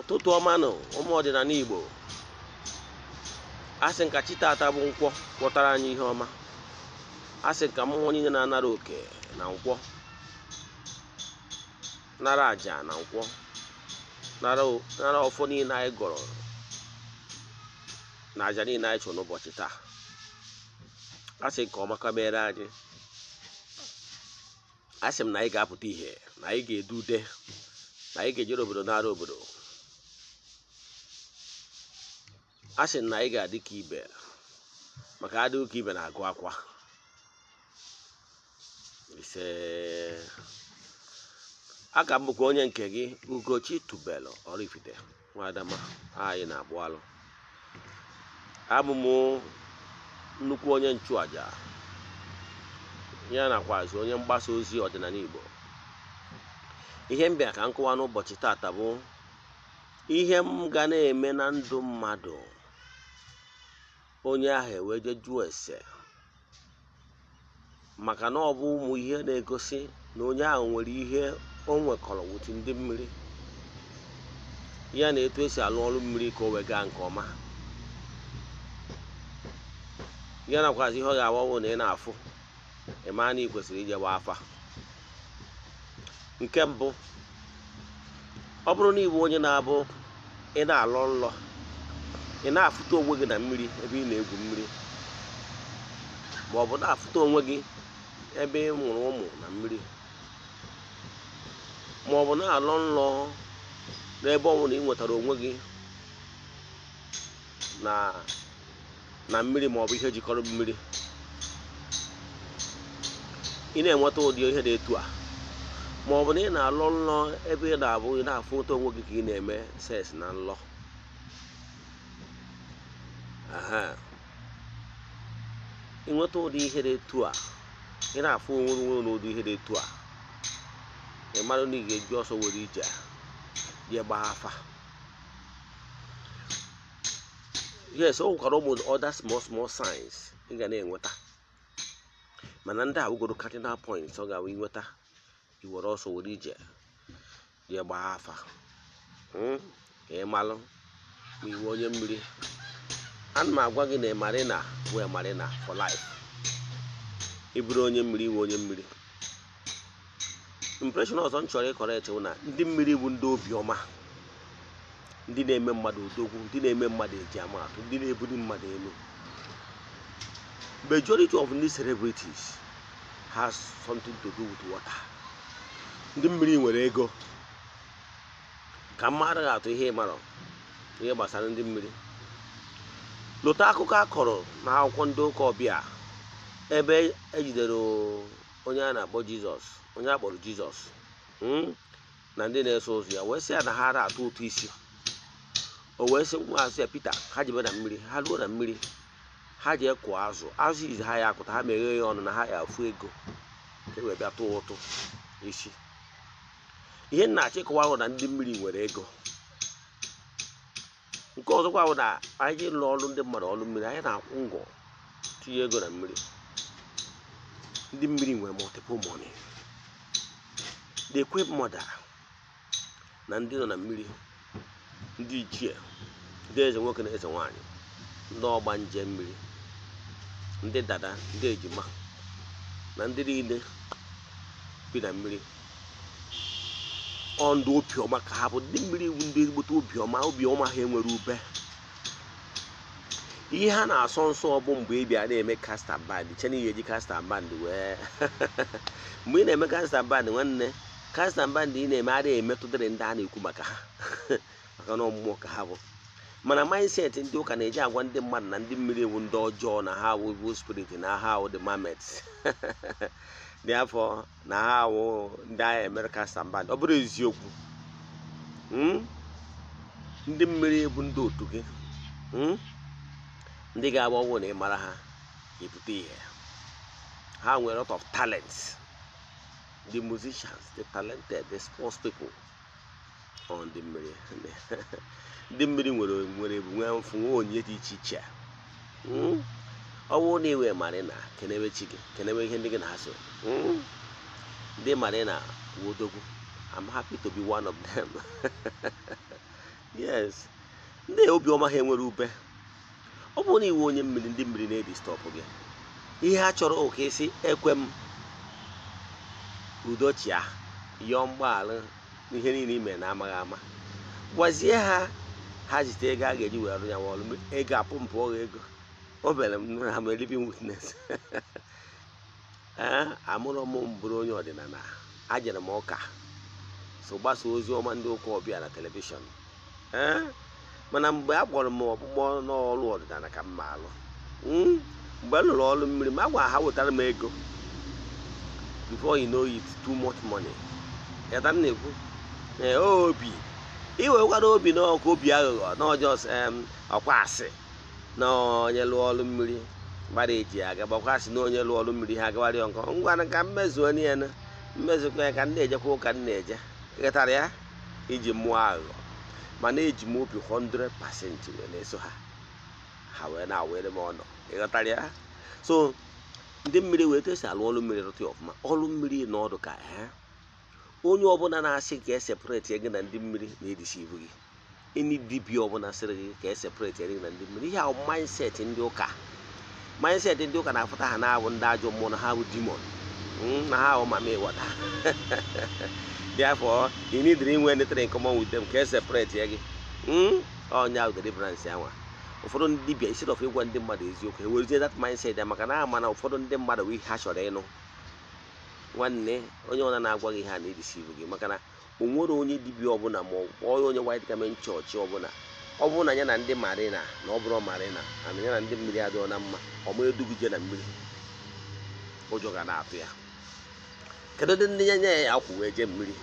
ụtụtụ ọma nụ ụmụ ọdịnala igbo asị nka chi tata bụ nkwọ kwọtara anyị ihe ọma asị nka mmụọ niile na-anara oke na nkwọ nara aja na nkwọ nara ọfọ niile anyị gọrọ na aja niile anyị chọrọ n'ụbọchị taa asị nke ọma kabere anyị asị m na anyị ga-apụta ihe na anyị ga-edu ude na anyị ga-ejere obodo nara obodo a sị na ị ga-adị ka ibe maka adịghị ka ibe na-agụ akwa ise a ka mbụkwa onye nke gị ugochi tubelu Oraifite nwadama anyị na-agbụ alụ abụ m nnukwu onye nchụaja ya nakwazị onye mgbasa ozi ọdịnala Igbo ihe m bịa ka m n'ụbọchị taata bụ ihe m ga na-eme na ndụ mmadụ onye ahụ ewee jụọ ese maka na ọ bụ ụmụ ihe na-egosi na onye ahụ nwere ihe o nwekọrọ wuti ndị mmiri ya na etu esi alụ ọrụ mmiri ka o wee gaa nke ọma ya nakwazi ihe ọ ga-agbawo na ị na-afụ ịmaa na ị kwesịrị ijewa afa nke mbụ ọ bụrụ na ịbụ onye na-abụ ị na alụ nlọ ị na-afụta onwe gị na mmiri ebe ị na-egwu mmiri ma ọ bụ na-afụta onwe gị ebe ị mụrụ ụmụ na mmiri ma ọ bụ na-alọ nlọ n'ebe ọ na ị nwetara onwe gị na na mmiri ma ọ bụ ihe jikọrọ mmiri ị na-enweta ụdị ihe dị etu a ma ọ bụ na ị na-alọ nlọ ebe ị na-abụ ị na-afụta onwe gị ka ị na-eme seks na nlọ ịnweta ụdị ihe dị etu a ị na-afụ onwe onwe na ụdị ihe dị etu a ị mara na ị ga-eji ọsọ were ije jee gbaa afa yes o nwekwara ụmụ other small small signs ị ga na-enweta mana ndị a wugoro cardinal points ọ ga-awụ inweta iwere ọsọ were ije jee gbaa afa hmm? ịmalụ ma iwe onye mmiri ana m agwa gị na marina wee marina for life ị onye mmiri iwe onye mmiri impreshon ọzọ m chọrọ ịkọrọ echewu na ndị mmiri bụ ndị obiọma ndị na-eme mmadụ odogwu ndị na-eme mmadụ eji amatụ ndị na-ebuli mmadụ elu majority of ndị celebrities has something to do with water ndị mmiri nwere ego ka mma ga-atụ ihe ịmarọ ihe gbasara ndị mmiri lụta akụkọ a kọrọ na akwụkwọ ndị ụka ọbịa ebe ejidere onye a na-akpọ jizọs onye a kpọrọ jizọs hmm, na ndị na-eso ụzọ ya wee sị ya na ha ara atụ ụtụ isi o wee sị nwaazụ ya pita ha jebe na mmiri ha ruo na mmiri ha jee kụọ azụ azụ izi ha ya akụta ha meghee ya ọnụ na ha ya afụ ego ka e wee bịa tụọ ụtụ isi ihe nna achịkọwa ahụ na ndị mmiri nwere ego nke ọzọkwa bụ na anyị ji lụọ ọrụ ndị mmadụ ọrụ mmiri anyị na-akwụ ngọ tinye ego na mmiri ndị mmiri nwere multiple money the ekwe mmadụ na ndị nọ na mmiri ndị ichie ndị eze nwoke na eze nwaanyị ndị ọgba nje mmiri ndị dada ndị ejima na ndị niile bi na mmiri ọ ndụ obiọma ka ha bụ ndị mmiri iwu ndị ezigbote obiọma obiọma ha enwere ube ihe ha na-asọ nsọ bụ mgbe ị bịa na-eme kasta band chena ihe eji kasta band wee mgbe ị na-eme kasta band nwanne kasta band ị na-eme adịghị emetụdịrị ndị a na-ekwu maka ha maka na ọmụmụ ka ha bụ mana mindset ndị ụka na-eji agwa ndị mmadụ na ndị mmiri iwu ndị ọjọọ na ha awụbụ spirit na ha awụ the mamet. dị afọ na ha awụ ndị agha America standby ọ bụrụ eziokwu hmm? ndị mmiri bụ ndị otu gị hmm? ndị ga-agba ọgwụ na ịmara ha ebute ihe ha nwere lot of talents the musicians the talented the sports people ọ ndị mmiri ndị mmiri nwere nwere ebumnwe onye dị iche iche hmm? ọnwụ na iwe mara na kenewe chi gị kenewe ihe ndị gị na-asụ hmm? ndị marina na wodogwu I'm happy to be one of them yes ndị obiọma ha enwere ube ọ bụrụ na iwe onye mmiri ndị mmiri na-edistọpụ gị ihe a chọrọ oke isi ekwe m udochia yọọ mgbaghara ihe niile ime na amaghị ama gwazie ha ha zite ego a ga-eji were arụ ya nwa ọrụ ego apụ mpụ ọghọ ego o mere ha ma living witness ee amụrụ m bụrụ onye ọdịnala ajere m ụka so gbasa ozi ọma ndị ụka ọbịa na telivishọn ee mana mgbe a kpọrọ m ọkpụkpọ n'ọrụ ọdịnala ka m ma alụ hmm, mgbe m lụrụ ọrụ mmiri m agwa ha wetara m ego before you know it too much money yata m na-ekwu ee obi iwekwara obi n'ọkụ obi aghụghọ um, ọkwa asị na onye lụọ ọlụ mmiri gbara eji aga gbakwasị na onye lụọ ọlụ mmiri ha agagharị nkọ ngwa na ka mmezuo ya na ya ka m na-ejekwa ụka m na-eje ịghọtara ya iji mụọ aghụghọ mana eji m obi 100 pasentị wee na-eso ha ha wee na-awere m ọnụ ịghọtara ya so ndị mmiri wee tesi alụ ọlụ mmiri rụta ya ọfụma ọrụ mmiri na ọdụ ka ha onye ọbụla na-asị ka e separeti gị na ndị mmiri na-edisi ibu gị eni dibia ọbụla sịrị gị ka e separate eri na ndị mmiri ihe ahụ mindset ndị ụka mindset ndị ụka na-afụta ha na-abụ ndị ajọ mmụọ na ha bụ demon hmm, na ha ahụ mama ịwata therefore you need to inwe anything in common with them ka e separate ya gị ọnya ahụ deliverance anwa ụfọdụ ndị dibia instead of ịgwa ndị mmadụ eziokwu ewerezie that mindset ya maka na ama eh, eh, na ụfọdụ ndị mmadụ wi ihe ha chọrọ ịnụ nwanne onye ọna na-agwa gị ha a na-edisivu gị maka na o nwere onye dibịa ọbụla ma ọ onye white garment chọọchị ọbụla ọ bụrụ na ya na ndị marina na ọ bụrụ marina ana ya na ndị mmiri adịghọ na mma ọma edugije na mmiri ụjọ ga na-atụ ya kedu ndị ndị nya ya ya akwụ wee jee mmiri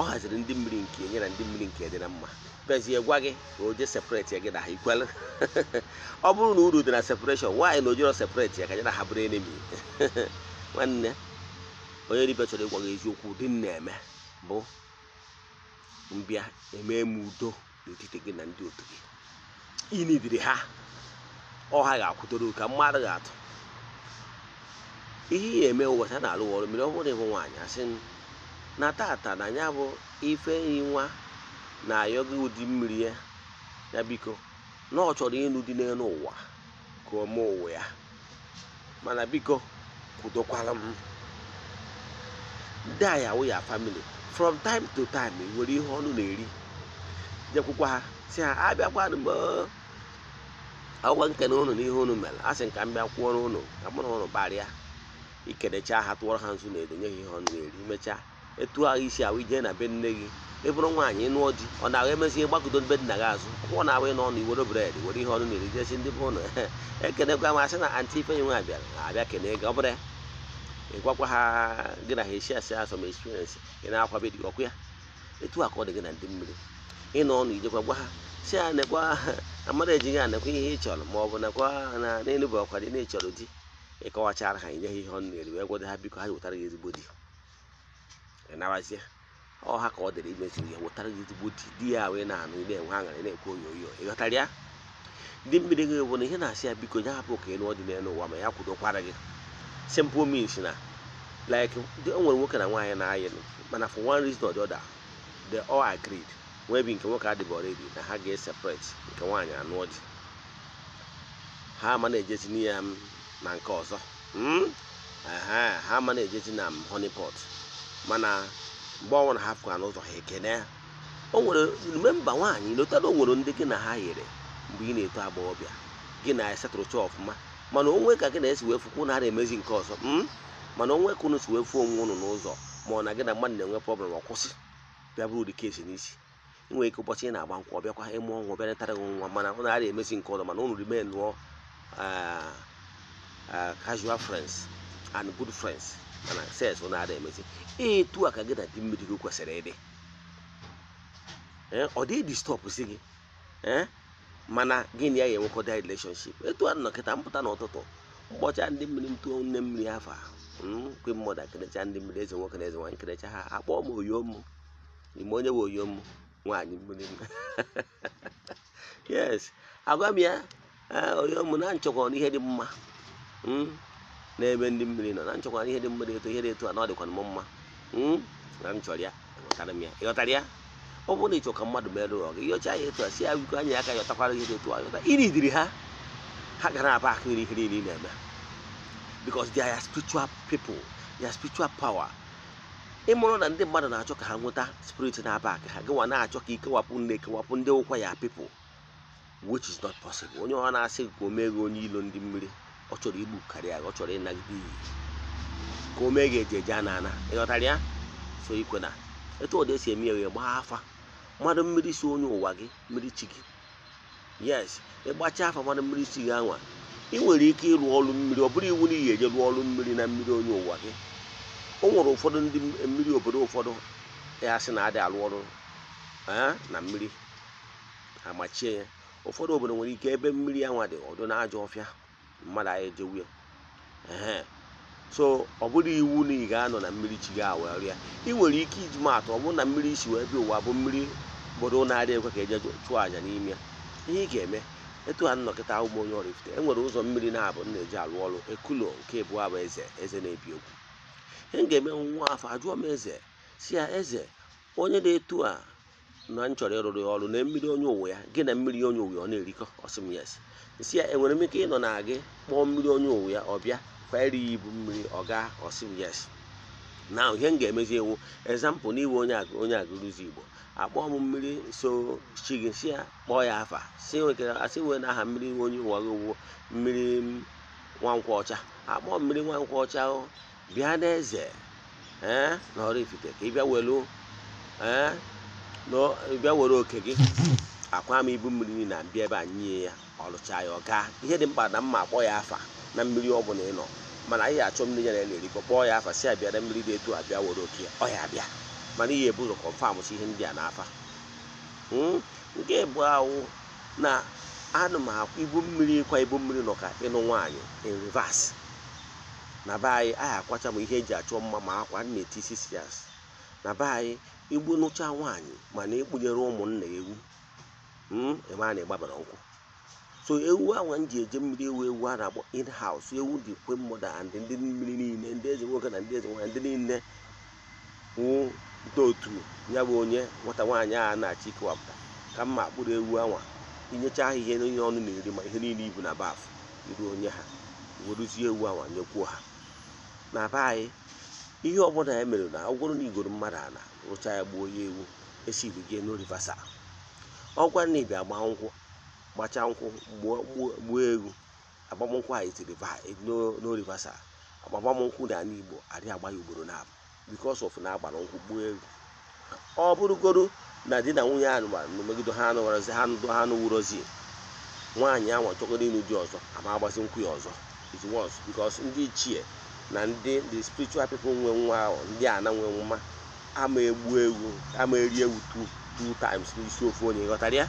ọ haziri ndị mmiri nke enye na ndị mmiri nke dị na mma bezie gwa gị ka o jee separate ya gị na ha ikwelụ ọ bụrụ na uru dị na separation nwaanyị na ojero separate ya ka ya na ha bụrụ enemi nwanne onye dibịa chọrọ ịgwa gị eziokwu ụdị m eme bụ mbịa eme m udo n'etiti gị na ndị otu gị inidiri ha ọha ga-akwụdoro ka mmadụ ga-atụ ihe ihe eme ụbọchị a na-alụ ọrụ mere ọ bụrụ ịbụ nwaanyị asị na tata na ya bụ ife enyi nwa na-ayọ gị ụdị mmiri ya ya biko na ọ chọrọ ịnụ dị n'elu ụwa ka ọ mee ụwa ya mana biko kwudokwala m ndị a ya famili from time to time nwere ihe ọnụ na-eri jekwukwa ha si ha abịakwanụ mgbe ọgwa nkene ụnụ na ihe ụnụ mere a sị nka m bịa kwụọrọ ụnụ ka mụ na ụnụ gbarịa ikenecha ha tụọrọ ha nzu na edo nye ha ihe ọnụ na-eri mechaa etu ahụ isi ahụ ije na be nne gị ị bụrụ nwaanyị ịnụ di ọ na-ahụ emezi ihe gbakọdo be nna gị azụ ọ na-ahụ ị n'ọnụ iwere bred were ihe ọnụ na-eri jesi ndị be ụnụ ekenekwa m asị na antị nye nwa bịara abịa kenee gị ọ bụrụ ya ịgwakwa ha gị na ha echi asị ha sọm ị na-akwabe dị ọkụ ya etu a ka ọ dị gị na ndị mmiri ịnọ ọnụ ijekwa gwa ha si ha nekwa amara eji ya nekwa ihe ị chọrọ ma ọ bụ nekwa na n'enugbe ọkwa dị na echọrọ di ịkọwachara ha inye ha ihe ọnụ eri wee gwado ha biko ha wetara gị ezigbo di ịnabazie ọ ha ka ọ dịrị imezuru ya wetara gị ezigbo di di ya wee na-anụ na-enwe aṅara na-ekwu oyoyo ịghọtara ya ndị mmiri gị bụ na ihe na-asị ya biko nye hapụ ka ị nụọ dị n'elu ụwa ma ya kwudokwara gị simple means na like o nwere nwoke na nwaanyị na-ayịlụ mana for one reason or the other they all agreed wee bi nke nwoke adịghị ebi na ha ga-eseparate nke nwaanyị anụọ ji ha ama na-ejezi ya na nke ọzọ ha ama na-ejezi na honey pot mana mgbe ọnwa na hapụ anụ ụzọ ha ekene ya o nwere memba nwaanyị lotara o nwere ndị gị na ha yiri mgbe ị na-eto agbọghọbịa gị na esetụrụcha ọfụma mana onwe ka gị na-esi wee fụkwu na na-emezi nke ọzọ mana onwe ka unu si wee fụ onwe unu n'ụzọ ma ọ na gị na mmadụ na-enwe prọblem ọkwụsị bịa bụrụ ụdị kesi n'isi nwere ike ụbọchị ị na-agba nkwa ọbịakwa ịmụ ọnwụ bịa netara gị nwa mana ụnụ adịghị emesi nke ọzọ mana ụnụ rimen nụọ ah, ah, casual friends and good friends mana sex ụnụ adịghị emesi etu a ka gị na dị mmiri gị kwesịrị ịdị eh, ọ dịghị distọpụ si gị eh, mana gịnị na ya ga-enwekọda relationship etu a nọ kịta mpụta n'ụtụtụ ụbọchị a ndị mmiri m nne mmiri afọ ahụ mkwe mmadụ akerecha ndị mmiri eze nwoke na eze nwaanyị kerecha ha akpọọ m oyom ime onye bụ nwe oyom nwaanyị mmiri m yes agwa m ya oyom na nchekwa n'ihe dị mma n'ebe ndị mmiri nọ na nchekwa n'ihe dị mma dị eto ihe dị eto a na ọ dịkwa m mma na m chọrọ ya ịghọtara m ya ịghọtara ya ọ bụrụ na ịchọ ka mmadụ merụọ ọ gị yọcha ya etu a si ya wiko anya ya aka yọtakwara ihe dị etu a yọta iri diri ha ha gara aba aka iri ihe niile na-eme because they are spiritual people they are spiritual power ịmụrụ na ndị mmadụ na-achọ ka ha nweta spirit na-aba aka ha gịwa na-achọ ka ikewapụ nne kewapụ ndị ụkwa ya people which is not possible onye ọ na-asị ka o mee gị onye ilo ndị mmiri ọ chọrọ igbu karịa ọ chọrọ ịnagide iyi ka o mee gị eji eje a na-ana ịghọtara ya so ikwe na etu ọ dị esi eme ya gbaa afa mmadụ mmiri si onye ụwa gị mmiri chi gị yes ịgbacha afa mmadụ mmiri si gị anwa ị nwere ike ịrụ ọrụ mmiri ọ bụrụ iwu na ihe eje rụọ ọrụ mmiri na mmiri onye ụwa gị o nwere ụfọdụ ndị mmiri obodo ụfọdụ ya sị na adị arụ ọrụ na mmiri amachie ya ụfọdụ obodo nwere ike ebe mmiri nwa dị ọdụ na ajọ ọfịa mmadụ anyị jewu ya so ọ bụrụ iwu na ị ga-anọ na mmiri chi gị awee rịa ị nwere ike iji maatụ ọ bụrụ na mmiri isi wee bịa ụwa bụ mmiri bụrụ na-adị ekwe ka eje chụọ àjà n'ime ya ihe ị ga-eme etu ha nnọkịta ụmụ onye ọrụ ifute enwere ụzọ mmiri na-abụ na-eji alụ ọrụ ekulo nke ebu abụ eze eze na-ebi okwu ihe m ga-eme nwa afọ ajụọ m eze si ya eze onye na-etu a na m chọrọ ịrụrụ ọrụ na mmiri onye uwe ya gị na mmiri onye uwe ọ na-erikọ ọsịm yes si ya enwere m ike ịnọ na gị kpọọ mmiri onye uwe ya ọ bịa kwa ya ibu mmiri ọ gaa ọsịm yes na ihe m ga-emezi ewu ezampụ n'iwe onye agụrụzi igbo akpọ m mmiri so chi gị si ya kpọọ ya afa si wekere asị wee na aha mmiri onye ụwaghị owuwo mmiri nwankwọ ọcha mmiri nwankwọ ọcha bịa n'eze ee eh, na ọrụ ifite ka ịbịa welu ee eh, na ịbịa were oke gị akwa m ibu mmiri na bịa ebe a nye ya ọlụcha ya ọ gaa ihe dị mkpa na mma akpọ ya afa na mmiri ọ bụla ị nọ mana anyị achọ mmiri ya na ya na-erikọ kpọọ ya afa si abịa na mmiri dị etu abịa were oke ọ ya abịa mana ihe ebu ụzọ kọnfamụsi ihe ndị a na-afa hmm? nke bụ awụ na anụ m akwa ibu mmiri ịkwa ibu mmiri nọ ka ịnụ nwaanyị in reverse na be anyị anyị akwacha m ihe eji achọ mma ma akwa na-etisi sias na be anyị igbu nụcha nwaanyị mana ịkpụnyere ụmụnna ewu hmm? ebe a na-egbabara nkwụ so ewu ahụ m ji eje mmiri ewu ewu a na-akpọ in house ewu dị kwe mmadụ ndị mmiri niile ndị eze nwoke na ndị eze nwaanyị ndị niile hmm? ite otu ya bụ onye nwata nwaanyị a na-achị ịkewapụta ka mma kpụrụ ewu anwa inyecha ha ihe niile ọnụ na-eri ma ihe niile ibu na baf iru onye ha weruzie ewu anwa nyekwuo ha na be anyị ihe ọbụla ya e mere na ọ na igoro mmadụ ana rụcha ya gbuo ya ewu esi gị n'orivasa ọgwa na ịbịa gba nkwụ gbacha nkwụ gbuo ewu agbamnkwụ tiri itiri e, n'orivasa agbamnkwụ na ala igbo adịghị agba ya ugboro nabụ because of na agbara nkwụ gbuo egwu ọ bụrụgodu na di na nwunye ahụ gbara megide ha anụwarọzi ha ndụ ha anụwurozi nwaanyị ahụ chọgoro ịnụ di ọzọ ama agbazi nkwụ ya ọzọ it was ndị ichie na ndị the spiritual people nwe nwa ahụ ndị a na nwe nwa ama egbu egwu ama eri egwu two times n'isi ofu onye ghọtara ya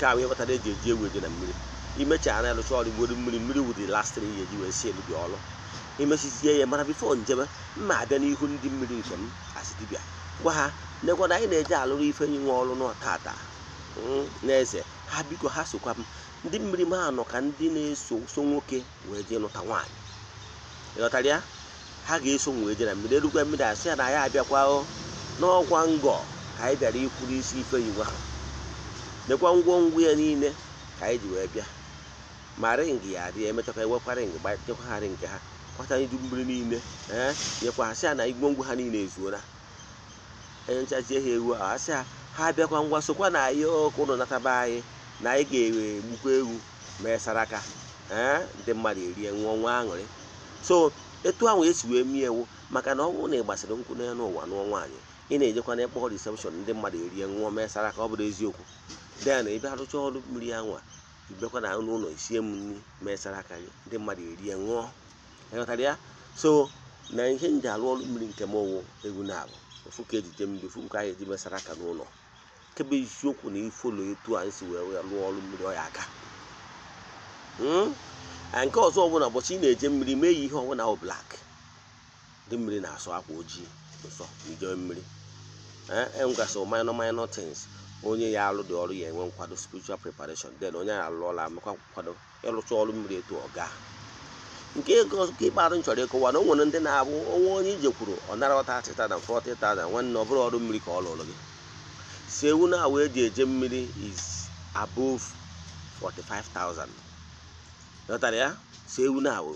ka wee ghọtara eji eji egwu eje na mmiri imecha na-arụcha ọrụ igbodo mmiri mmiri wụ the last three ji wee si elu ọrụ emesizie ya mara bifo njem mma abịa n'ihu ndị mmiri nke m asị gwa ha nekwana anyị na-eje alụrụ ifenyi nwa ọrụ n'ọtata hmm, na eze ha biko ha sokwa m ndị mmiri m anọ ka ndị na-eso so nwoke wee jee lụta nwaanyị ịghọtara ya ha ga-eso wee jee na mmiri erukwa mmiri asị ya na ya abịakwa n'ọkwa ngọ ka anyị bịara ikwuru isi ifenyi nwa ha nekwa ngwo ya niile ka anyị ji wee bịa ma ring ya adị emechakwa ewekwara ring gbachekwa ha ring ha kpata idu mmiri niile ee eh, nyekwa asị ya na ha niile ezuola onye nchazie ha ewu ahụ asị ha ha bịakwa ngwa sokwa na ihe ọkụ ụlọ nataba anyị na anyị ga-egbukwa ewu ma esaraka ee eh, ndị mmadụ erie nwụọ nwa aṅụrị so etu ahụ esi wee mie ewu maka na ọ bụrụ na ị gbasịrị nkwụ n'elu ụwa nụọ nwaanyị ị na-ejekwa na ịkpọ risepshọn ndị mmadụ erie nwụọ ma esara ọ bụrụ eziokwu den ị bịa rụcha ọrụ mmiri anwa ịbịakwa na ụlọ isie m nri ma esara aka gị ndị mmadụ erie nwụọ ịghọtara ya so na ihe m ji mmiri nke m ọwụ egwu na-abụ ofu ka eji jee mmiri ofu anyị eji mesara aka n'ụlọ nke bụ eziokwu na ifolo etu anyị si wee lụọ ọrụ mmiri ọ ya aga hmm? nke ọzọ ọbụla ụbọchị ị na-eje mmiri mee ya ihe ọbụla bụ blak ndị mmiri na-asọ akwa ojii nsọ njọ mmiri enwegasị eh, e minor minor things onye ya alụ dị ọrụ ya enwe nkwado spiritual preparation den onye ya alụ ọla amekwa nkwado ịrụcha ọrụ mmiri etu ọ gaa nke ego nke ikpeazụ m chọrọ ịkọwa na o nwere ndị na-abụ onwe onye ije kwuru ọ nara ọta atịtada fọtịtada nwanne ọ bụrụ ọrụ mmiri ka ọ lụrụ gị si ewu na awa eji eje mmiri is above 45,000 ghọtara ya si ewu na awụ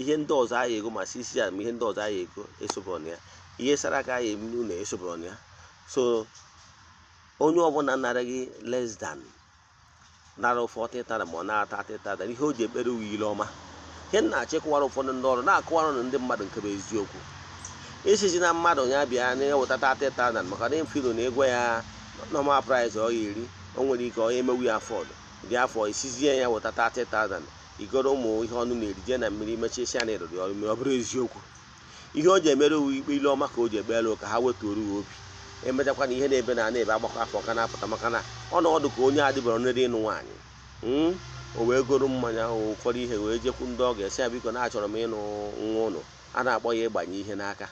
ihe ndị ọzọ aha ego ma si isi ya ma ihe ndị ọzọ aha ego esobụrụ ya ihe sara aka aha emu na esobụrụ ya so onye ọbụla nara gị less than nara 40,000 ma ọ nara 30,000 ihe o ji ekpere uwe ile ọma ihe nna achịkwara ụfọdụ ndị ọrụ na ụnụ ndị mmadụ nke bụ eziokwu isizi na mmadụ ya bịa na-ewetata teta maka na mfilo na ego ya nọmal price ọ iri o nwere ike onye emewu ya afọdụ dị afọ isizie ya wetata teta igoro ụmụ ihe ọnụ na-eri na mmiri mechisia na ịrụrụ ọrụ mere ọ bụrụ eziokwu ihe o ji emere uwe ikpe ile ọma ka o ji egbelu ka ha wetuoru ya obi e na ihe na-ebe na ana ebe agbakọ afọ ka na-apụta maka na ọ na ọdụ ka onye adịbara n'ere ịnụ nwaanyị hmm? o wee goro mmanya ahụ ụfọdụ ihe wee jekwu ndị ọ ga-esi ya biko na achọrọ m ịnụ nwa ụnụ a na-akpọ ya ịgbanye ihe n'aka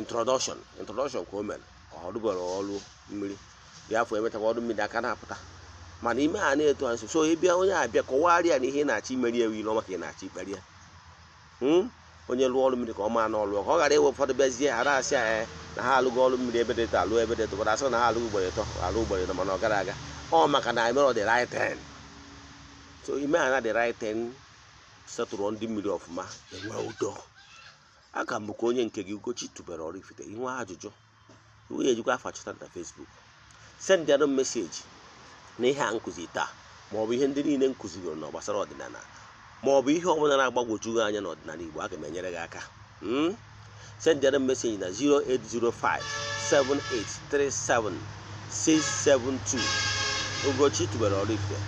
introdọshọn introdọshọn ka o mere ọ rụbere ọrụ mmiri bịa afọ emechakwa ọrụ mmiri aka na-apụta mana ime a na-eto ha nso so ịbịa onye abịa kọwara ya na ihe na-achọ imeri ewu ile maka ị na-achọ ikpere ya hmm? onye lụọ ọrụ mmiri ka ọ ma na ọlụ ka ọ ghara iwe ụfọdụ bịazie ha asị anyị na ha alụghị ọrụ mmiri ebe dịta alụ ebe dịta ụfọdụ asị na ha alụghị ugboro ịtọ alụ ugboro ịtọ mana ọ gara aga ọ maka na mere ọ dị right so ime ha na the right thing setụrụ ndị mmiri ọfụma enwe ụdọ aga m bụkwa onye nke gị ugochi tubere Oraifite inwe ajụjụ iwu ya ejikwa afa chọta na Facebook send anụ meseji na ihe a nkụzi taa ma ọ bụ ihe ndị niile nkụziri na gbasara ọdịnala ma ọ bụ ihe ọbụla na-agbagwoju gị anya n'ọdịnala Igbo aga m enyere gị aka sendịanụ meseji na 08057837672 Ugochi tubere Oraifite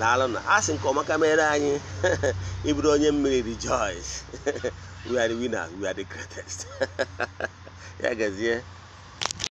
daalụ na asị nke ọma anyị ịbụrụ onye mmiri rejoice we are the winners we are the greatest ya gazie